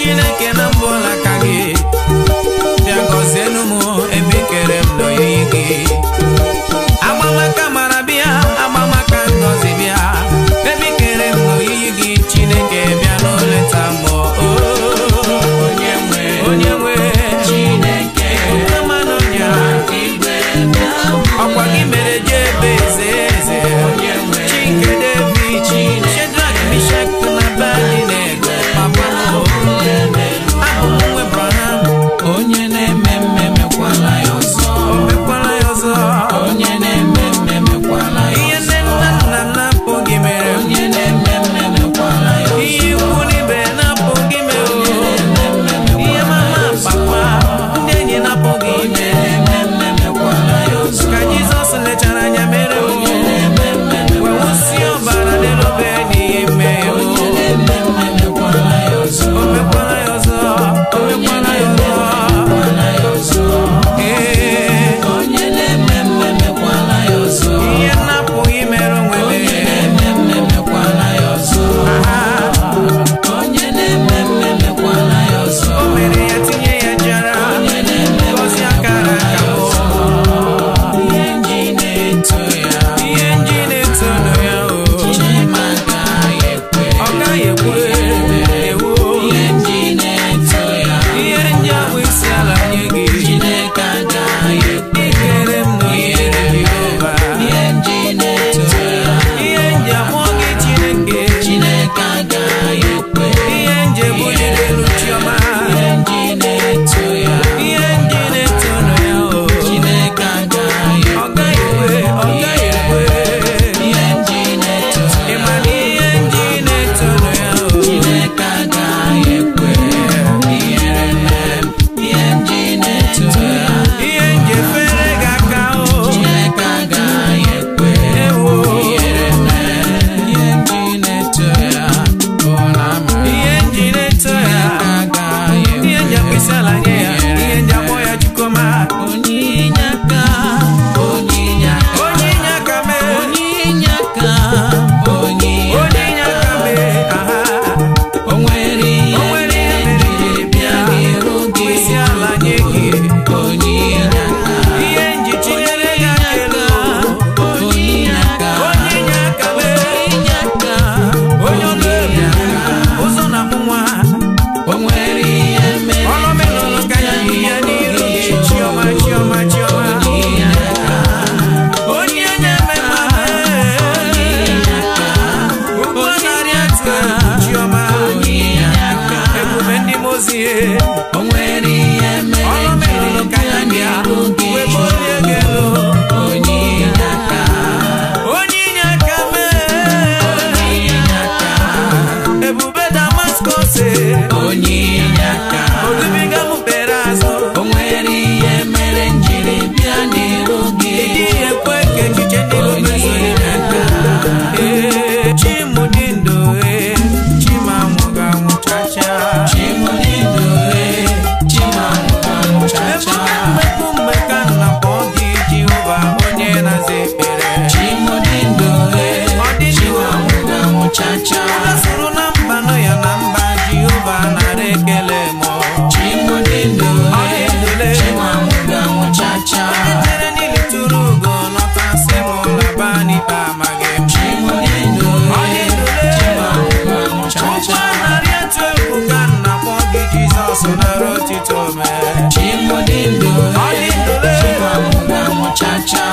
Chineke na mma Shall cha cha